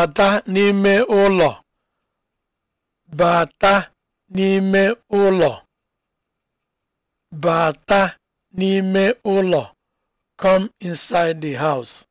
bata n'ime ụlọ bata n'ime n'ime ụlọ come inside the house